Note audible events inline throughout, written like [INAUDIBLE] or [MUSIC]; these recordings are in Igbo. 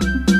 thank you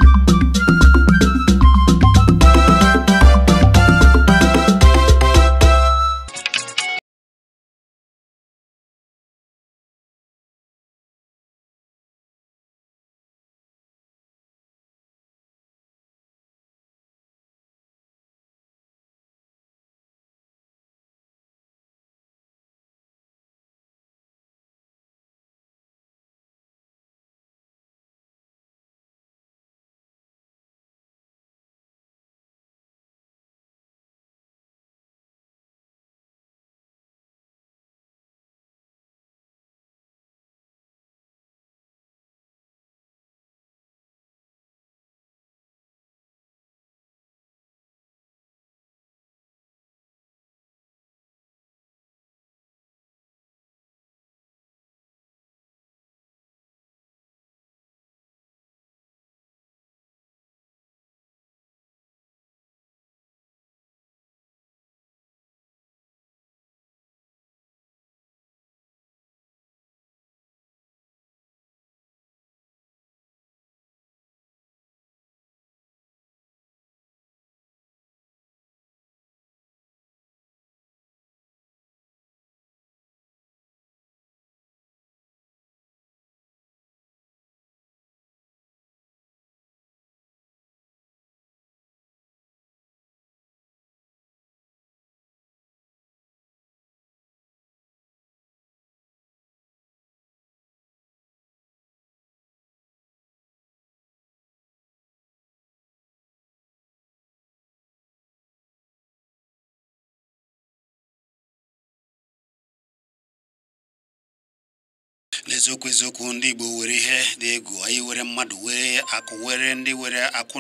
n'eziokwu eziokwu ndị Igbo were ihe dị egwu anyị were mmadụ were akụ were ndị were akụ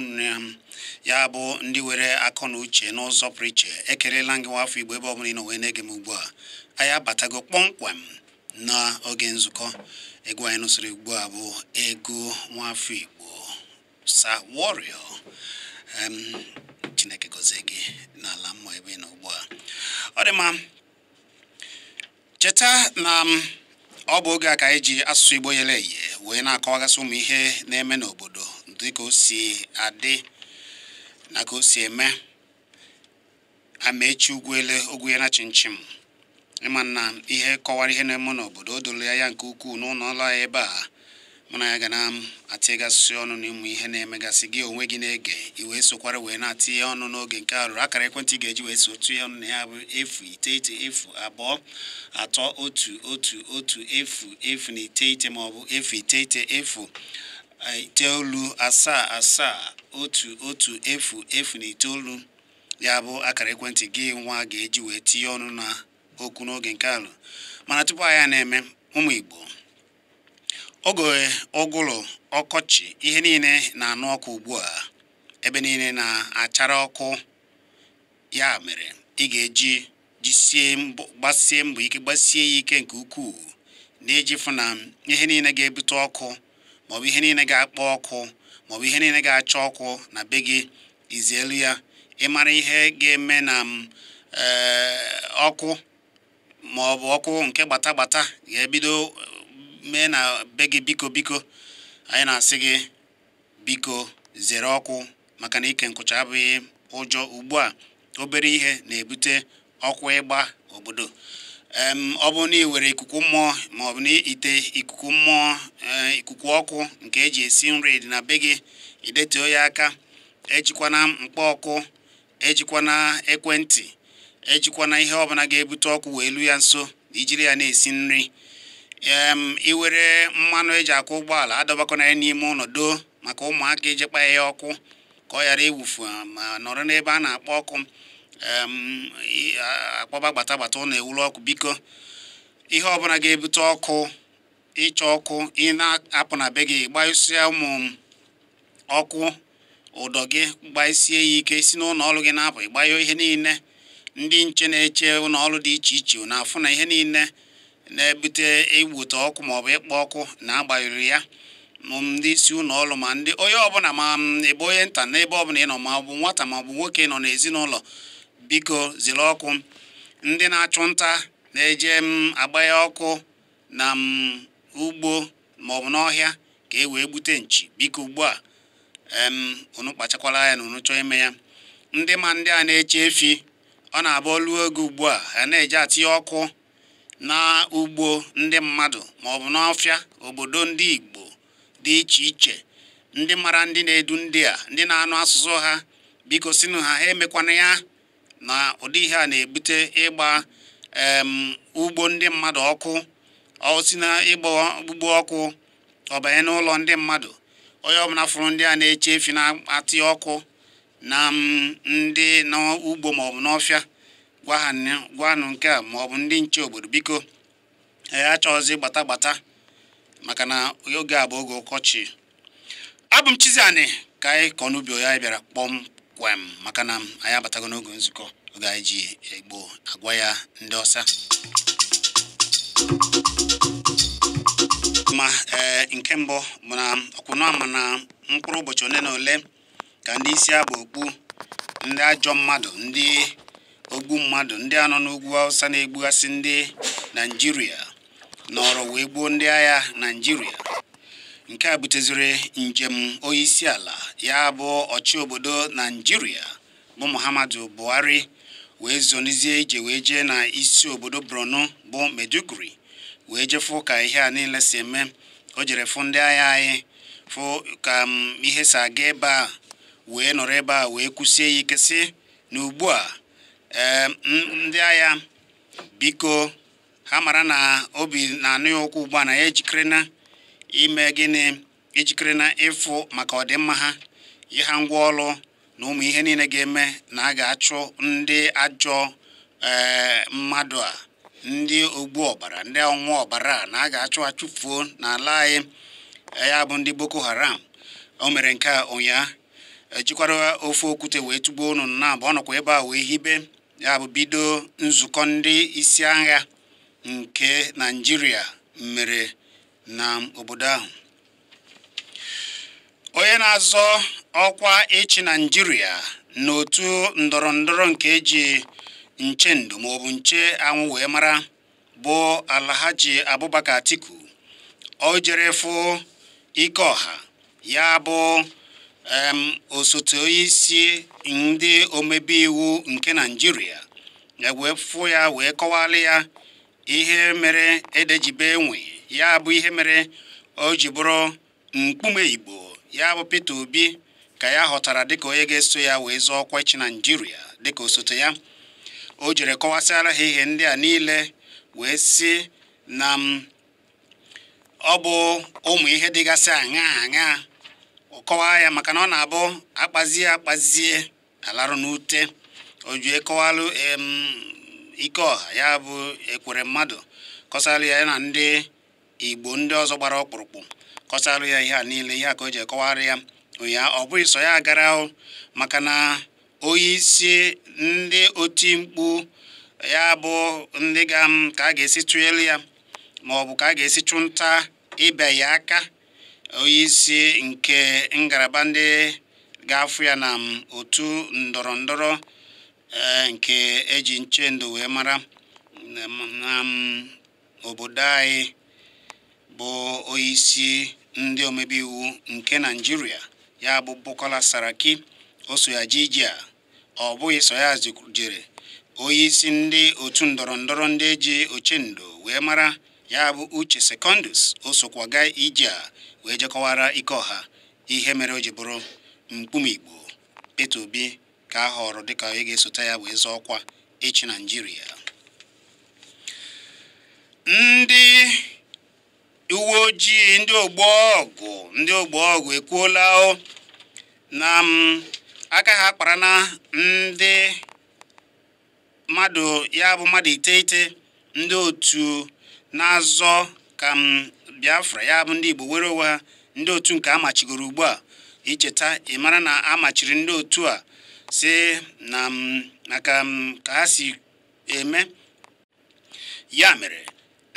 ya bụ ndị were akọ na uche n'ụzọ pụrụ iche ekelela gị nwa afọ Igbo ebe ọ bụla wee na-ege m ugbu a anyị abatago kpọmkwem n'oge nzukọ egwu anyị nụsịrị ugbu a bụ nwa afọ Igbo Sir Warrior Chineke gozie gị n'ala mmụọ ebe ị ugbu a ọ dị mma cheta na ọ bụ oge a ka anyị ji asụsụ Igbo yere eye wee na-akọwagasị ụmụ ihe na-eme n'obodo dịka o si adị na ka o si eme echi amaechi ugwuele ya na chinchim ịma na ihe kọwara ihe na-eme n'obodo o doro ya nke ukwuu n'ụlọ ọrụ ya ebe a mụ na ya ga na atịgasị ọnụ na ịmụ ihe na-emegasị gị onwe gị na-ege iwe sokwara wee na-atịnye ọnụ n'oge nke arụrụ akara ekwentị ga-eji wee so tụnye ọnụ na ya bụ efu iteghete efu abụọ atọ otu otu otu efu efu na iteghete maọbụ efu iteghete efu iteolu asaa asaa otu otu efu efu na iteolu ya bụ akara ekwentị gị nwa ga-eji wee tinye ọnụ na okwu n'oge nke alụ mana tupu anyị na-eme ụmụ Igbo oge ụgụrụ ọkọchị ihe niile na-anụ ọkụ ugbu a ebe niile na-achara ọkụ ya mere ị ga-eji jisie gbasie mbọ ike gbasie ya ike nke ukwuu na-eji fụ na ihe niile ga-ebute ọkụ maọbụ ihe niile ga-akpọ ọkụ maọbụ ihe niile ga-acha ọkụ na be gị izielu ya ịmara ihe ga-eme na eh, ọkụ maọbụ ọkụ nke gbata gbata ga-ebido mee na be gị biko biko anyị na-asị gị biko zere ọkụ maka na ike nkụcha abụghị ụjọ ugbu a obere ihe na-ebute ọkụ ịgba obodo ọ bụrụ na ị were ikuku mmụọ ma ọ bụ na ite ikuku mmụọ e, ikuku ọkụ nke eji esi nri dị na be gị idetuo ya aka ejikwana mkpọ ọkụ ejikwana ekwentị ejikwana ihe ọbụla ga-ebute ọkụ wee lu ya nso ijiri ya na-esi nri iwere mmanụ eji akwụ ụgbọala adọbakọna ya n'ime ụlọdo maka ụmụaka iji kpa ya ọkụ ka ọ ghara iwufu um, ma nọrọ n'ebe a na-akpọ ọkụ akpọba gbata gbata ụlọ ewuru ọkụ biko ihe ọbụla ga-ebute ọkụ ịchọ ọkụ ị na-apụ na be gị gbasịa ụmụ ọkụ ụdọ gị gbasie ya ike si n'ụlọ ọrụ gị na-apụ ịgbanyụ ihe niile ndị nche na-eche ụlọ dị iche iche na-afụ na ihe niile na-ebute igbute ọkụ maọbụ ịkpọ ọkụ na-agbanyụrụ ya ndị isi ụlọ ọrụ ma ndị onye ọbụla ma ebe onye nta ebe ọbụla ịnọ ma ọ bụ nwata ma ọ bụ nwoke nọ n'ezinụlọ biko zere ọkụ ndị na-achụ nta na-eje agbanye ọkụ na ugbo maọbụ n'ọhịa ka e wee gbute nchi biko ugbu a unu kpachakwara na unu chọọ ime ya ndị ma ndị a na-eche efi ọ na-abụ olu oge ugbu a ha na-eje atinye ọkụ na ugbo ndị mmadụ maọbụ n'ọfịa obodo ndị Igbo dị iche iche ndị mara ndị na-edu ndị a ndị na-anụ asụsụ ha biko sinụ ha ha emekwana ya na ụdị ihe a na-ebute ịgba ugbo ndị mmadụ ọkụ osi na ịgba ugbo ọkụ ọbanye n'ụlọ ndị mmadụ onye ọbụla fụrụ ndị a na-eche efi na-atị ọkụ na ndị n'ugbo maọbụ n'ọfịa gwanụ nke a ma ọ ndị nche obodo biko ya achọghịzị gbata gbata maka na oge a bụ oge ụkọchị abụ m Chizzy ka anyị kọ n'ubi onye bịara kpọmkwem maka na anyị abatago n'oge nzukọ oge anyị ji egbo agwa ya ndị ọsa ma nke mbụ bụ na ọkwụnụ ama na mkpụrụ ụbọchị ole na ole ka ndị isi abụ okpu ndị ajọ mmadụ ndị ogbu mmadụ ndị anọ n'ugwu awụsa na egbugasị ndị naijiria nọrọ wee gbuo ndị agha naijiria nke a buteziri njem ala ya bụ ọchị obodo naijiria bụ Muhammadu Buhari wee zonizie ije wee jee na isi obodo bronu bụ Maiduguri wee jefu ka ihe a niile si eme o jere fụ ndị agha anyị fụ ka mm, ihe si aga ebe a wee nọrọ ebe a wee kwụsie ya ike si na ugbu a ndị agha biko ha mara na obi na-anụ ya ụkwụ ugbu a na ya ejikere na ime gịnị ijikere na ịfụ maka ọdịmma ha ịha ngwa ọrụ na ụmụ ihe niile ga-eme na a ga-achụ ndị ajọ eh, mmadụ a ndị ogbu ọbara ndị ọnwụ ọbara na a ga-achụ achụfuo n'ala anyị eh, ya bụ ndị Boko Haram o mere nke a ụnyaahụ ejikwara ofe okwute wee tụgbuo unu na abụ ọ nọkwa ebe a wee hibe ya bụ bido nzukọ ndị isi agha nke naijiria mere na obodo ahụ onye na-azọ ọkwa ịchị naijiria n'otu ndọrọ ndọrọ nke eji nche ndụ maọbụ nche anwụ wee mara bụ Alhaji Abubakar Atiku o jere fụ ọha ya bụ osote onye isi ndị omebe iwu nke naijiria na-ewefụ ya wee kọwala ya ihe mere edejibe enwe ya bụ ihe mere o ji bụrụ mkpume igbo ya bụ Peter Obi ka ya ghọtara dịka onye ga-eso ya wee zọọ ọkwa naijiria dịka osote ya o jere kọwasịara ha ihe ndị a niile wee si na ọ bụ ụmụ ihe dịgasị aṅa aṅa kọwaa ya maka na ọ na-abụ akpazie akpazie alarụ n'ute oju ekọwalụ ike ọha ya bụ ekwere mmadụ kọsalụ ya na ndị igbo ndị ọzọ gbara ọkpụrụkpụ kọsalụ ya ihe a niile ihe a ka o ji ekọwara ya ụnyaahụ ọ bụghị so ya gara ahụ maka na onye isi ndị oti mkpu ya bụ ndị ga ka a ga-esi tụelu ya ma ọ bụ ka a ga-esi chụ nta ịbịa ya aka isi nke ngalaba ndị ga-afụ ya na otu ndọrọ ndọrọ e, nke eji nchendo wee mara na obodo anyị bụ isi ndị omebe iwu nke naijiria ya bụ Bukola Saraki o so ya ji a ọ bụghị iso ya jere isi ndị otu ndọrọ ndọrọ ndị eji ochendo wee mara ya bụ Uche Secondus osokwaga wee jekọwara ike ọha ihe mere o ji bụrụ mkpumigbo Peter Obi ka a họrọ dịka ị ga-esote ya wee zọọ ọkwa echi Naịjirịa ndị uwe ojii ndị ogbo ọgụ ndị ogbo ọgụ ekwuola na um, aka ha kpara na ndị mmadụ ya bụ mmadụ iteghete ndị otu na-azọ ka m um, biafra ya bụ ndị igbo were onwe ndị otu nke amachigoro ugbu a icheta ị mara na amachiri ndị otu a si na maka ka ha si eme ya mere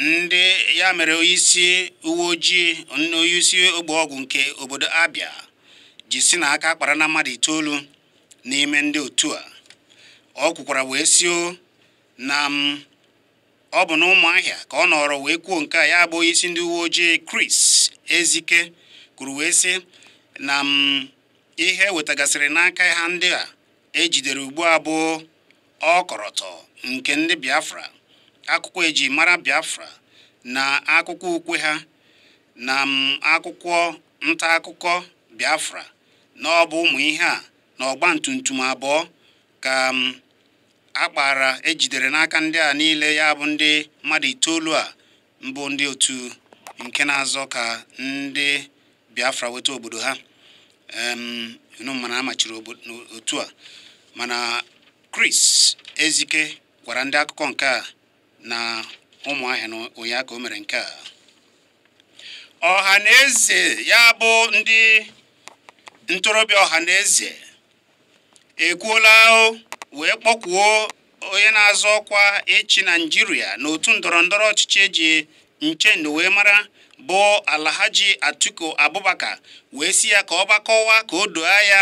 ndị ya mere onyeisi uwe ojii onyeisi ogbe ọgwụ nke obodo abia ji si na aka kpara na mmadụ itoolu n'ime ndị otu a ọ kwukwara wee sio na m ọ bụ na ụmụahịa ka ọ nọrọ wee kwuo nke a ya bụ isi ndị uwe ojii Chris Ezike kwuru wee sị na m ihe e wetagasịrị n'aka ha ndị a ejidere ugbu a bụ ọkọrọtọ nke ndị Biafra akwụkwọ eji mara Biafra na akwụkwọ ukwe ha na akwụkwọ nta akụkọ Biafra na ọ bụ ụmụ ihe a na ọgba tum abụọ ka akpara ejidere n'aka ndị a niile ya bụ ndị mmadụ itoolu a mbụ ndị otu nke na-azọ ka ndị Biafra weta obodo ha mana amachiri otu a mana Chris Ezike gwara ndị akụkọ nke a na ụmụahịa na ụnyaahụ ka o mere nke a ọha na eze ya bụ ndị ntorobịa ọha na eze ekwuola wee kpọkwuo onye na-azọ ọkwa ịchị naijiria n'otu ndọrọ ndọrọ ọchịchị eji nchen wee mara bụ alahaji atiku abubakar wee si ya ka ọ gbakọwa ka o doo ya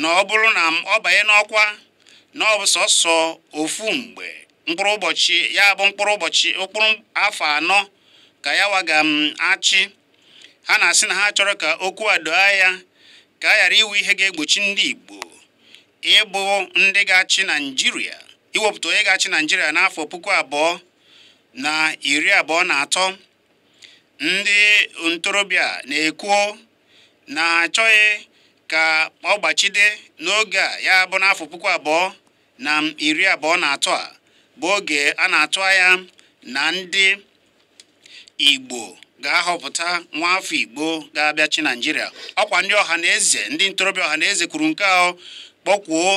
na ọ bụrụ na ọ banye n'ọkwa na ọ bụ sọsọ ofu mgbe mkpụrụ ụbọchị ya bụ mkpụrụ ụbọchị mkpụrụ afọ anọ ka ya waga m achị ha na-asị na ha chọrọ ka okwu a doo ya ka a ghara iwu ihe ga-egbochi ndị igbo ịbụ ndị ga-achị naijiria iwepụta onye ga-achị naijiria n'afọ puku abụọ na iri abụọ na atọ ndị ntorobịa na-ekwuo na achọghị ka ọ gbachide n'oge a ya bụ n'afọ puku abụọ na iri abụọ na atọ a bụ oge a na-atụ anya na ndị igbo ga-ahọpụta nwa afọ igbo ga-abịachi naijiria ọkwa ndị ọha na eze ndị ntorobịa ọha na eze kwuru nke ahụ kpọkwuo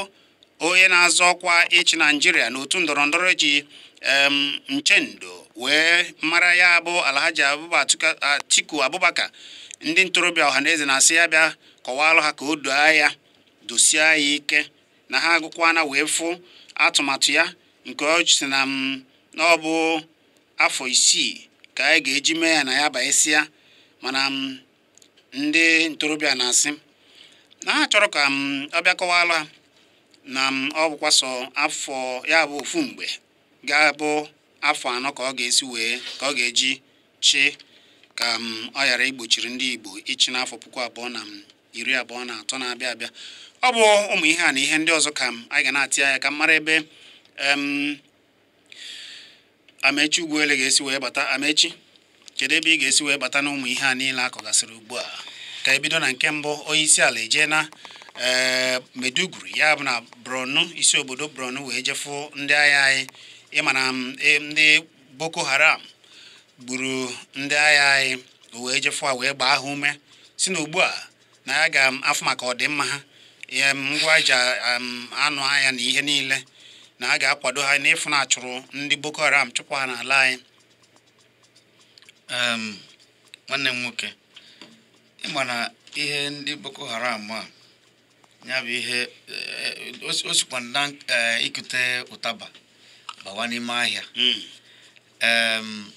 onye na-azọ ọkwa ịchị naijiria n'otu ndọrọndọrọ ji nchendo wee mara ya bụ alhaji atiku abubakar ndị ntorobịa ọhaneze na-asị ya bịa kọwalụ ha ka o doo ya dosie ya ike na ha agụkwana wee fụ atụmatụ ya nke ọchịsị na m na ọ bụ afọ isii ka anyị ga-eji mee ya na ya ya mana ndị ntorobịa na-asị na ha chọrọ ka m ọbịa kọwala na m ọ bụkwa sọ afọ ya bụ ofu mgbe ga-abụ afọ anọ ka ọ ga-esi wee ka ọ ga-eji chi ka m ọ ghara igbochiri ndị Igbo ịchị n'afọ puku abụọ na iri abụọ na atọ na-abịa abịa ọ bụ ụmụ ihe a na ihe ndị ọzọ ka anyị ga na-atị anya ka m mara ebe Amechi Ugwuele ga-esi wee bata Amechi kedu ebe ị ga-esi wee bata na ụmụ ihe a niile akọgasịrị ugbu a ka ebido na nke mbụ onye isi ala eje na ee eh, Meduguri ya bụ na bronu isi obodo bronu wee jefu ndị agha anyị ịmana mm, e, ndị Boko Haram gburu ndị agha anyị wee jefu a wee gbaa ha ume si na ugbu a na ya ga-afụ mm, maka ọdịmma ha ihe mm, ngwa anụ ahịa na ihe niile na a ga-akwado ha n'ịfụ na achụrụ ndị Boko Haram chụpụ ha n'ala anyị nwanne m nwoke ịma na ihe ndị boko haram a ya bụ ihe eh, osikwa na eh, ikute ụtaba bawa n'ime ahịa hmm.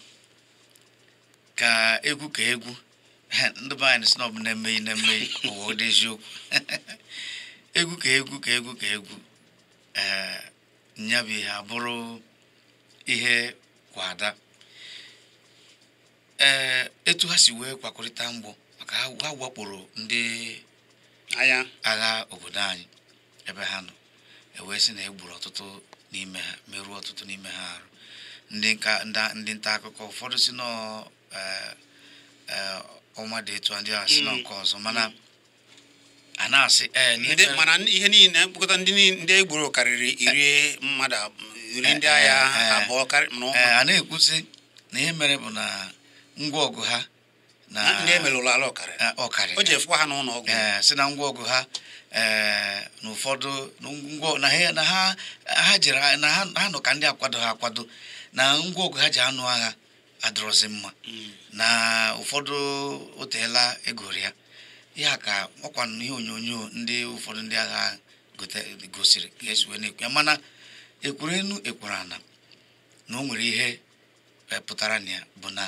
ka egwu ka egwu [LAUGHS] ndị be anyị na ọ na emeghi na ụwa ụdị eziokwu [LAUGHS] egwu ka egwu ka egwu ka egwu ee eh, ya bụ ihe abụrụ ihe kwada ee etu ha si wee kwakọrịta mgbọ ha wakporo ndị agha obodo anyị ebe ha nọ ewee sị na egburu ọtụtụ n'ime ha merụọ ọtụtụ n'ime ha arụ ndị nta akụkọ ụfọdụ si e, e, ọnwa dị etu ndị a si na nke ọzọ mm. mana a na-asị e, mana ihe niile mkpokọta ndị egburu karịrị iri mmadụ iri ndị agha abụọ mana a na-ekwusi na ihe mere bụ na ngwa ọgụ ha ndị emelụrụ ala ọkarị eh, o ji efukwa ha n'ụlọ ọgwụ eh, si na ngwa ọgụ eh, ha na ụfọdụ na ha jere ha nọ ka ndị akwado ha akwado na ngwa ọgụ ha ji anụ agha adịrọzi mma hmm. na ụfọdụ oteela egori ya ya ka ọkwa ihe onyonyo ndị ụfọdụ ndị agha gosiri ka esi wee na-ekwu ya mana ekwuru enu ekwuru ana na o nwere ihe pụtara na ya bụ na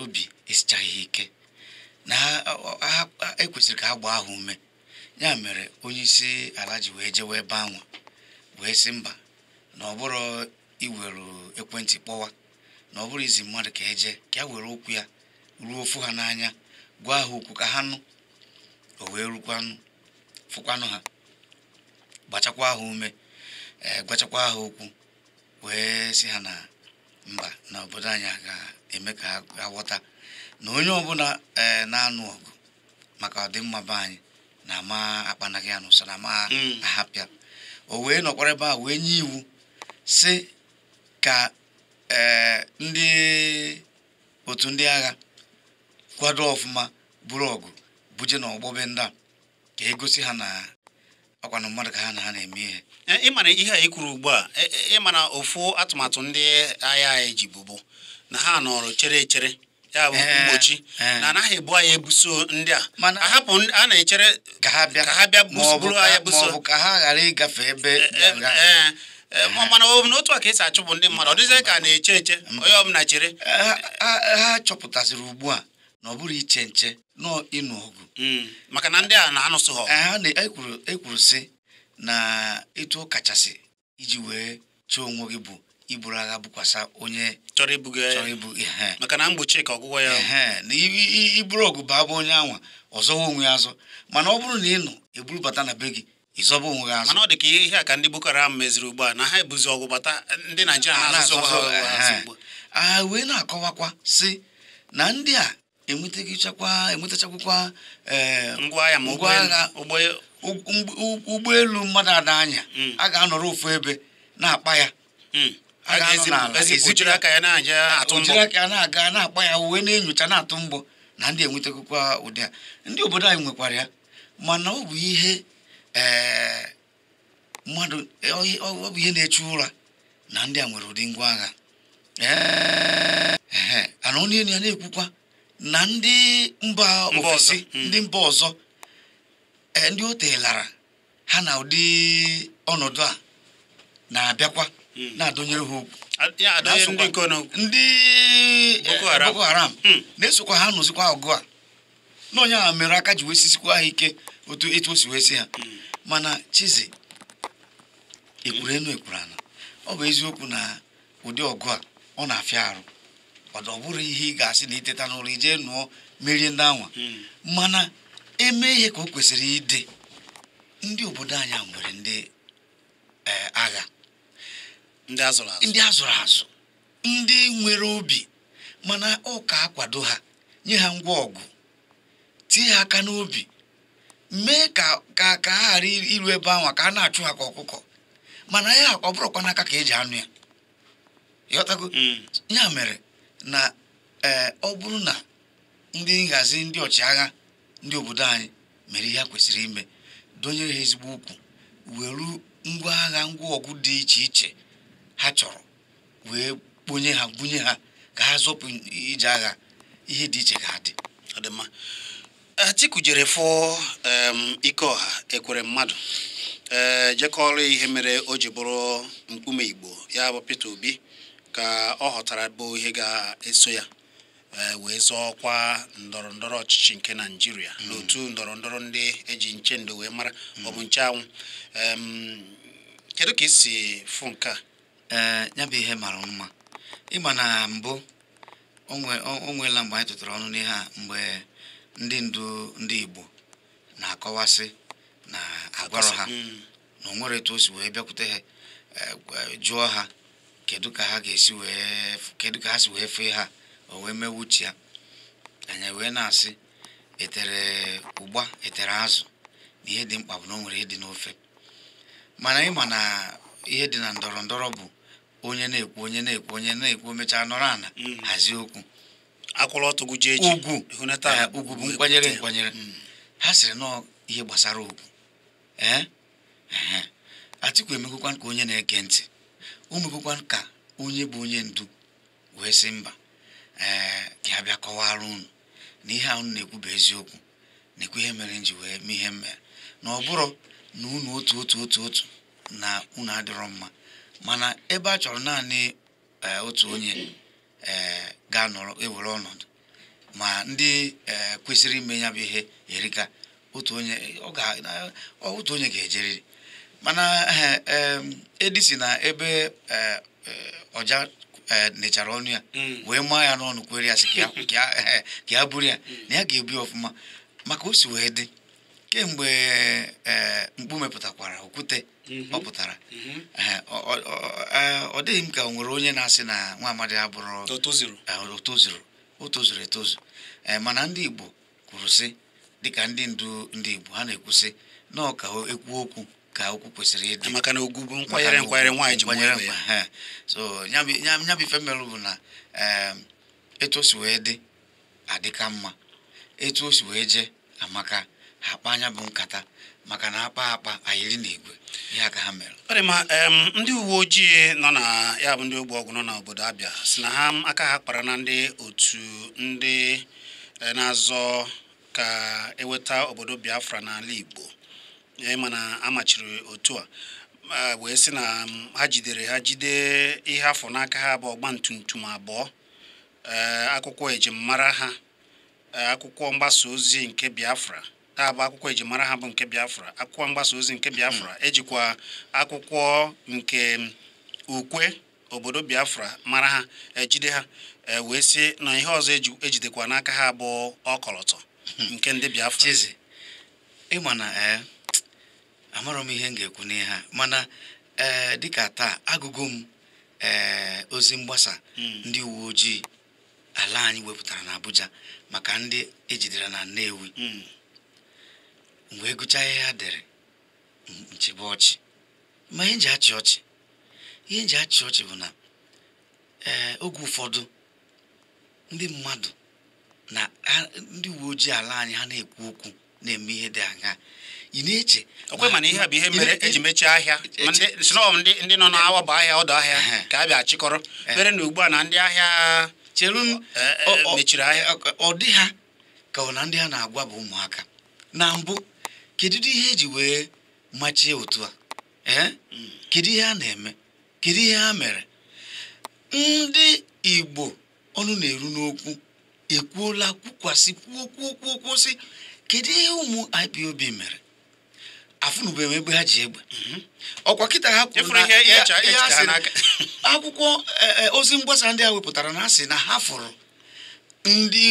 obi esichaghị ike na ekwesịrị ka ha gbaa ha ume ya mere onye isi ala ji wee jewe ebe anwa wee sị mba na ọ bụrụ iwere ekwentị kpọwa na ọ bụrụ izi mmadụ ka eje ka ya were okwu ya ruo ofu ha n'anya gwa ha okwu ka ha nụ o wee rukwanụ fụkwanụ ha gbachakwa ha ume ee gwachakwa ha okwu wee sị ha na mba na obodo anyị ga-eme ka ha ghọta na onye ọbụla ee eh, na-anụ ọgụ maka ọdịmma be anyị na ama akpanaghị anụ so na ama mm. ahapịa o wee nọkwara ebe a wee nye iwu si ka ee eh, ndị otu ndị agha kwado ọfụma buru ọgụ buje na ọgbọbe ndị a ka egosi ha na ọkwana mmadụ ka ha na ha na-eme ihe eh, ịmara ihe a kwuru ugbu a ịmara ofu atụmatụ ndị agha anyị ji bụbu na ha nọrọ chere chere ya bụ mgbochi na anaghị ebu anyị ebuso ndị a ahapụ a na-echere ka ha bịa bụrụ anyị buso ka ha ghara ịgafe ebe e, e, e, mana ọ bụ na otu a ka esi achụpụ ndị mmadụ ọ dịzie ka a na-eche eche onye ọbụla chere ha chọpụtaziri ugbu a na ọ bụrụ iche nche nọọ ịnụ ọgụ hmm, maka na ndị a na-anụsụ ha ekwuru sị na etu kachasị iji wee chee onwe gị bụ iburu agha bụkwasa onye chọrọ ibuga chọrọ ibu ihe maka na mgbochi ka ọgwụgwọ ya na iburu ogu bụ abụ onye anwa ọzọwa onwe ya azọ mana ọ bụrụ na ị nọ eburubata na be gị ịzọba onwe gị azụ. mana ọ dị ka ihe a ka ndị Boko Haram meziri ugbu a na ha ebuzi ọgwụ bata ndị Naijiria na-azụ ha wee na-akọwakwa si na ndị a enwetachakwa enwetachakwakwa e, ngwa agha e- ụgbọelu mmadụ ada anya hmm. a ga-anọrọ ofu ebe na-akpa ya hmm. aka na-aga na-akpa ya uwe na-enyocha na-atụ mbọ na ndị enwetakwa ụdị a ndị obodo anyị nwekwara ya mana ọ bụ ihe eh, mmadụ ọ bụ ihe na eche ụra na ndị a nwere ụdị ngwa agha eh, eh, ana ọ na ya na-ekwukwa na ndị mba ofesi hmm. ndị mba ọzọ ndị o telara ha na ụdị ọnọdụ a na-abịakwa Hmm. na-adụnyere ha okwu ndị boko haram hmm. na-esokwa ha nụzikwa ọgụ a na onye ahụ mere aka ji wee ha ike otu etu o si ha hmm. mana chizi ekwuru enu ekwuru ana ọ bụ eziokwu na ụdị ọgụ a ọ na-afịa arụ ọ bụrụ ihe ị ga-asị na iteta n'ụlọ ijee nụọ merie ndị anwa mana eme ihe ka o kwesịrị ịdị ndị obodo anyị nwere ndị eh, agha ndị azụrụ azụ ndị nwere obi mana ụka akwado ha nye ha ngwa ọgụ tie ha aka n'obi mee ka ka ha ghara iru ebe ahụ ka a na-achụ ha ka ọkụkọ mana ya ọ bụrụkwa n'aka ka eji anụ ya ịghọtago hmm. ya mere na e, ọ bụrụ na ndị nhazi ndị ọchịagha ndị obodo anyị mere ihe a kwesịrị ime donyere ha ezigbo ukwu were ngwa agha ngwa ọgụ dị iche iche ha chọrọ wee kponye ha bunye ha ka ha zọpụ ije agha ihe dị iche ga adị ọdịmma Atiku jere ike ọha ekwere mmadụ ee jekọrọ ihe mere o ji bụrụ mkpume Igbo ya bụ Peter Obi ka ọ ghọtara bụ ihe ga-eso ya e, wee zọọkwa ndọrọ ndọrọ ọchịchị nke Naijiria. Hmm. n'otu ndọrọ ndọrọ ndị eji nche ndo wee mara hmm. ọ bụ nche anwụ kedu ka si fụ nke a ee eh, ya bụ ihe mara mma ịma na mbụ o nweela mgbe anyị tụtara ọnụ n'ihe a mgbe ndị ndu ndị Igbo na-akọwasị na agwarọ ha hmm. na o nwere etu o si wee bịakwute ha eh, jụọ ha kedu ka ha ga wee kedu ka ha si wee fee ha o wee mewuchi ya anya wee na-asị etere ụgba etere azụ na ihe dị mkpa bụ na o nwere ịdị n'ofe mana ịma na ihe dị na ndọrọ ndọrọ bụ onye na-ekwu onye na-ekwu onye na-ekwu mechaa nọrọ ana hmm. hazie okwu akwụrụ eh, ugwu bụ nkwanyere hmm. nkwanyere ha sịrị nọọ ihe gbasara okwu atịkwa eh, eh, Atiku emekwekwan ka onye na-ege ntị o ka onye bụ onye ndu wee sị mba ee ka ha bịa kọwara unu na ihe ahụ na-ekwu bụ eziokwu na-ekwu ihe mere nji wee mee ihe m mere na ọ bụrụ na unu otu otu otu otu na unu adịrọ mma mana ebe a chọrọ naanị eh, otu onye eh, ga-anọrọ ewere ọnọdụ ma ndị eh, kwesịrị ime ya bụ ihe erika otu onye otu onye ga-ejeriri mana edisi na ebe ọja nechara ọnụ ya mm. wee maa ya n'ọnụ kwere ya sị ka ya buru ya mm. na ya ga-ebu ọfụma maka o si wee dị kemgbe e, mkpu mepụtakwara okwute mhm. Mhm. ọ pụtara e, ọ dịghị m ka o nwere onye na-asị na nwa amadi abụrụ o o tozuru etozu e, mana ndị Igbo kwuru sị dịka ndị ndu ndị Igbo ha na-ekwusị na ọ ka ekwu okwu ka okwu kwesịrị ịdị maka na ogwu bụ nkwanyere nkwanyere nwaanyị ji nkwanyere ya so nyabi ife bụ na etu o si wee dị adịka mma etu o si wee jee amaka akpa anya bụ nkata maka na akpa akpa na n'igwe ihe aka ha mere ọ ma ndị uwe ojii nọ na ya bụ ndị ogbe ọgụ nọ n'obodo Abịa si na ha aka ha kpara na ndị otu ndị e, na-azọ ka eweta obodo Biafra n'ala Igbo ịma e, na amachiri otu a wee sị na ha jidere ha jide ihe afọ n'aka ha bụ ọgba tum abụọ e, akwụkwọ ejimmara ha akwụkwọ mgbasa ozi nke Biafra a bụ akwụkwọ ejimara ha bụ nke Biafra akwụkwọ mgbasa ozi nke hmm. Biafra ejikwa akwụkwọ nke mm, ukwe obodo Biafra mara ha ejide ha e, wee sị na ihe ọzọ ejidekwa n'aka ha bụ ọkọlọtọ hmm. nke ndị Biafra ịma na e, m ihe m ga-ekwu n'ihe ha mana ee dịka taa agụgụ m ee ozi mgbasa hmm. ndị uwe ojii ala anyị wepụtara na abuja maka ndị ejidere na Nnewi mgbe ịgụcha ya ha dere nchebe ọchị ma ihe nji achị ọchị ihe nji achị ọchị bụ na eh, oge ụfọdụ ndị mmadụ na ndị uwe ojii ala anyị ha na-ekwu okwu na-eme ihe dị aga ị na-eche okwe mana ihe a bụ ihe mere eji mechie ahịa ndị nọ n'awa bụ ahịa ọdụ ahịa ka a bịa chịkọrọ mere na ugbu a na ndị ahịa cheru eh, eh, mechiri ahịa ọ dị ha ka ọ na ndị ha na-agwa bụ ụmụaka na mbụ kedu ihe ji wee machie otu a ee eh? kedu ihe a na-eme kedu ihe a mere ndị Igbo ọnụ na-eru n'okwu ekwuola kwukwasị kwuo si, kedu ihe ụmụ IPOB mere afụnụbeghị ebe ha ji egbe mhm. ọkwa kịta ha kwuru na akwụkwọ e, e, ozi mgbasa ndị a wepụtara na asị na ha fụrụ ndị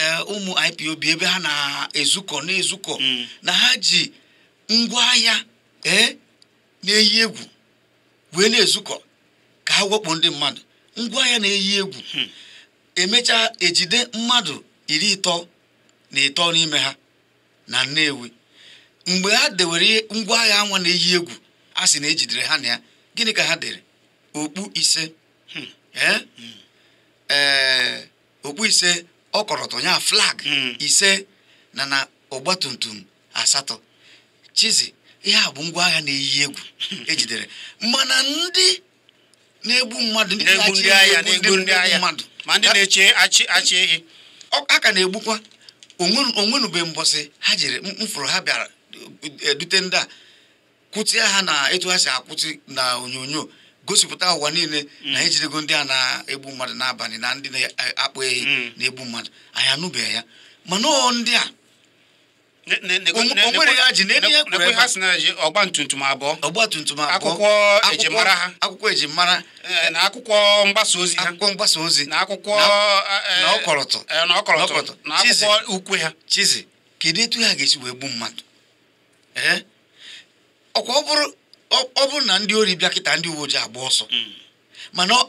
Eh, ụmụ ipob ebe ha na-ezukọ na-ezukọ mm. na ha ji ngwaahịa ee eh, na-eyi egwu wee na-ezukọ ka ha wepụ ndị mmadụ ngwaahịa na-eyi egwu hmm. emechaa ejide mmadụ iri ịtọ na ịtọ n'ime ha na Nnewi mgbe ha dewere ngwaahịa anwa na-eyi egwu a sị na ejidere ha na ya gịnị ka ha dere okpu ise hmm. Eh? Hmm. okpu ise ọ kọrọtụ ya flag hmm. ise na na tumtum asatọ chizi ihe a bụ ngwa agha na-eyi egwu hmm. ejidere mana ndị na-egbu mmadụ ndị na ndị ma ndị na-eche achị ehi a ka na-egbukwa onwenube mbọsị ha jiri mfụrụ ha bịara edute ndị a kwụtịa ha na etu ha si akwụtị na gosipụta ụwa niile mm. na anyị ndị a na-egbu mmadụ n'abalị na ndị na-akpọ ehi mm. na-egbu mmadụ anyị anụbeghị ya mana ọ ndị a ya ji ọgba abụọ ọgba abụọ akwụkwọ ejimara ha e, na akwụkwọ mgbasa ozi akwụkwọ mgbasa ozi na akwụkwọ ukwe ha chizi kedu etu ha ga-esi wee gbu mmadụ ọkwa ọ bụrụ ọ bụrụ na ndị ori bịa kịta ndị uwe ojii agba ọsọ hmm.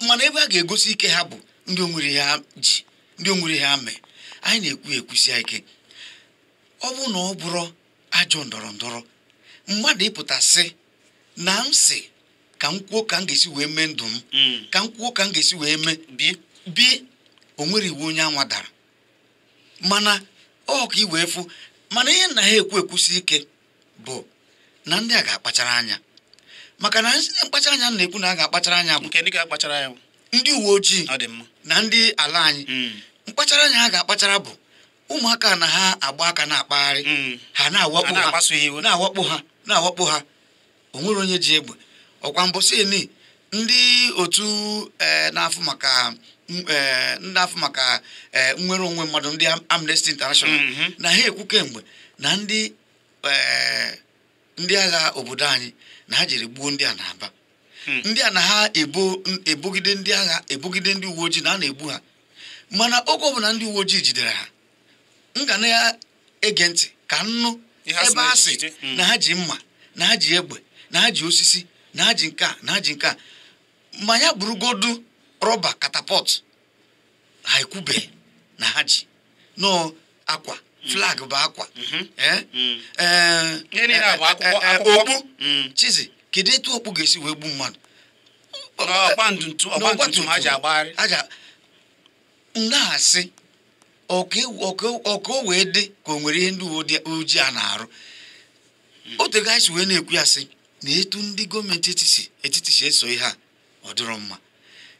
mana ebe a ga-egosi ike ha bụ ndị onwere ha ji ndị onwere ha mee anyị na-ekwu ekwusi ike ọ bụ na ọ bụrụ ajọ ndọrọ ndọrọ mmadụ ịpụtasị na m sị ka m kwuo ka m ga-esi wee mee ndụ m hmm. ka m kwuo ka m ga-esi wee mee bi o nwere iwu onye anwa dara mana ọ ka iwee fụ mana ihe na ha ekwu ekwusi ike bụ na ndị a ga-akpachara anya maka na mkpachara anya na-ekwu na a ga-akpachara anya bụ ndị uwe ojii na ndị ala anyị hmm. mkpachara anya ha ga-akpachara bụ ụmụaka na ha agba aka na-akpagharị hmm. ha na-awakpo ha na-awakpo ha o nwere onye ji egbe ọkwa mbọsị eni ndị otu eh, na-afụ maka eh, ndị afọ maka eh, nnwere onwe mmadụ ndị Amnesty International hmm. na ha ekwu kemgbe na ndị agha obodo anyị na ha jiri gbuo ndị a na-aba hmm. ndị a na ha ebogide ndị agha ebogide ndị uwe ojii na a na-egbu ha mana oge ọbụla ndị uwe ojii jidere ha m ga na-ege ntị ka nnụ ebe a sị hmm. na ha ji mma na ha ji egbe na ha ji osisi na ha ji nke na ha ji nke ma ya burugodu rọba katapọt ha ekwubeghị na ha ji nọ akwa flag bụ akwa okpu chizi kedu etu okpu ga-esi wee gbu mmadụ na-asị ọka wee dị ka o nwere ihe ndị uwe ojii a na-arụ mhm. otu si wee na-ekwu ya sị na etu ndị gọọmenti etiti si eso ihe a ọ dịrọ mma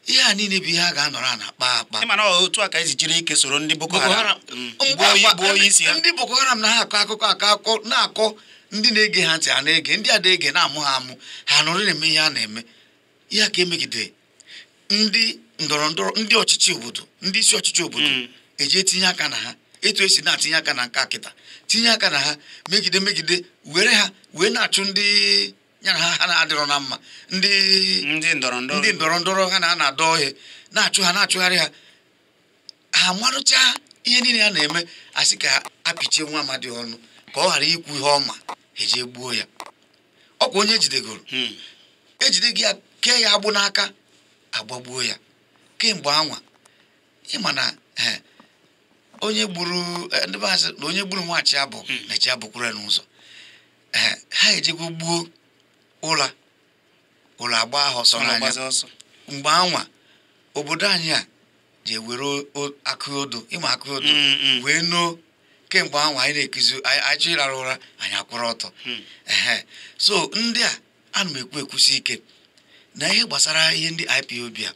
ihe a niile bụ ihe a ga-anọrọ na akpa akpa otu a ka esi jiri ike soro ndị Boko Haram mm. ndị Boko Haram na ha akọ akụkọ akọ na-akọ ndị na-ege ha ntị a na-ege ndị adaege na-ege na-amụ ha amụ ha nọrọ na-eme ihe a na-eme ya ka emegide ndị ndọrọ ndọrọ ndị ọchịchị obodo ndị isi ọchịchị obodo eji mm. etinye aka na ha etu esi na-atinye aka na nka kịta tinye aka na ha megide megide were ha wee na-achụ ndị ya na ha na-adịrọ na mma ndị ndị ndọrọ ndọrọ ha na ana adọ ọhịa na-achụ ha na-achụgharị ha ha marụcha ihe niile a na-eme asị ka apịchie nwa amadi ọnụ ka ọ ghara ikwu ihe ọma eje gbuo ya ọkwa onye ejidegoro hmm. ejide gị kee ya agbụ n'aka agbagbuo ya kemgbe anwa ịma eh, eh, na onye gburu ndị hmm. na onye gburu nwachi abụ na chi abụkwuru n'ụzọ eh, ha ejego gbuo ụla ụlọ agba ahụ ọsọ n'anya mgbe anwa obodo anyị a ji ewere akụodo odo ịma akụ odo hmm, hmm. wee noo kemgbe anwa anyị na-ekuzi anyị chọ ịrara ụra anyị akwụrụ ọtọ hmm. so ndị a ana m ekwu ekwusi ike na ihe gbasara ihe ndị IPOB a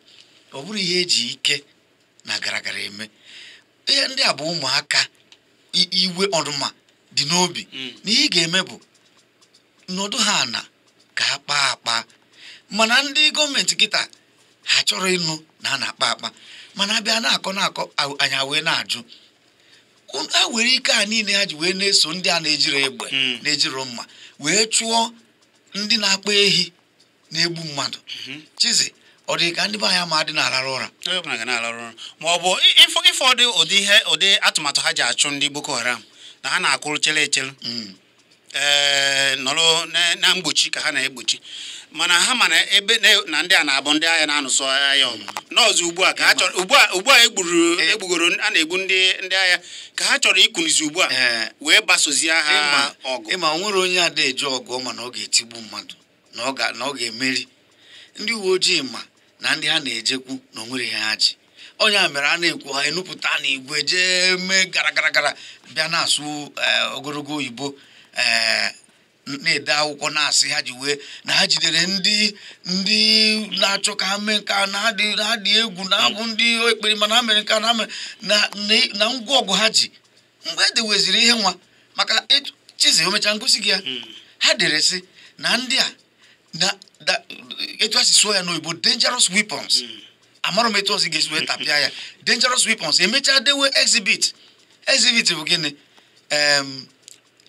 ọ bụrụ ihe eji ike na garagara eme ihe ndị a bụ ụmụaka iwe ọdụma dị n'obi na ihe ị ga-eme bụ nọdụ ha na ka a kpaa akpa mana ndị gọọmenti kịta ha chọrọ ịnụ na a na-akpa akpa mana abịa na-akọ na-akọ anya wee na-ajụ a were ike a niile ha ji wee na-eso ndị a na ejiri egbe hmm. na-ejiro mma wee chụọ ndị na-akpa ehi na-egbu mmadụ hmm. chizi ọ dị ka ndị be anyị ma dị na-alarụ ụra ma ọ bụ ịfọdụ ụdị atụmatụ ha ji achụ ndị Boko Haram na ha na-akụrụ chere echere hmm. Eh, nọrọ na mgbochi ka ha na-egbochi mana ha ma na ebe na ndị a na-abụ ndị agha na-anụsọ agha ọgụ hmm. n'ọzọ ugbu a ka ha chọrọ ugbu a egburu egbugoro a na-egbu ndị ndị agha ka ha chọrọ ikunizi ugbu a eh. wee gbasozie ha ọgụ ịma ọ nwere onye ada eje ọgụ ma na ọ ga-etigbu mmadụ na ọ ga-emeri ndị uwe ojii ma na ndị ha na-ejekwu na o nwere ihe ha ji onye a mere a na-ekwu ha enupụta na igwe jee mee gara gara gara bịa na-asụ eh, ogologo oyibo na-ede akwụkwọ na-asị ha ji wee na ha jidere ndị ndị na-achọ ka ha mee nke a na adị egwu na abụ ndị ekpere mana ha mere nke a na na ngwa ọgụ ha ji mgbe edeweziri ihe nwa maka chizi omechaa ngosi gị ya ha dere sị na ndị a na etu a si ya n'oyibo dangerous weapons amarọ m etu ọzọ ga-esi wee tapịa ya dangerous weapons emechaa dewe exhibit exhibit bụ gịnị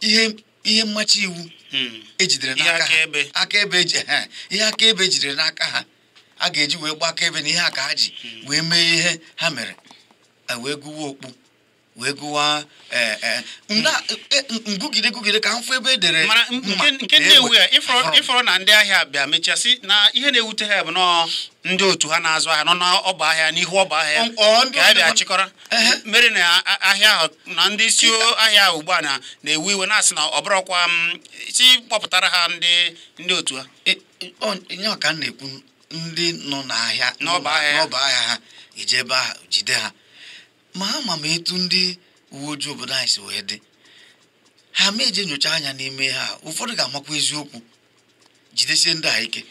ihe ihe mmachi iwu hmm. ejidere n'aka ha e [LAUGHS] ihe akaebe ejidere n'aka ha a ga-eji wee gba akaebe na ihe aka ha ji hmm. wee mee ihe ha mere wee gụwa okpu wee gụwa e, e, e, ngụgide ngụgide ka mfụ ebe edere mara nke na-ewu ya ịfọrọ na ndị ahịa bịa mechaa sị na ihe na-ewute ha bụ nọọ ndị otu ha na-azụ ahịa nọ n'ọba ahịa n'ihu ọba ahịa ka ha bịa chịkọrọ mere na ahịa ahụ na ndị isi ahịa ugbu a na-ewu iwe na-asị na ọbụrọkwa si kpọpụtara ha ndị ndị otu ha ya ọka na-ekwu ndị nọ n'ahịa n'ọba ahịa ha eje ebe ahụ jide ha ma ama m etu ndị uwe ojii obodo anyị si wee dị ha ma eje nyocha anya n'ime ha ụfọdụ ga-amakwa eziokwu jidesie ndị a ike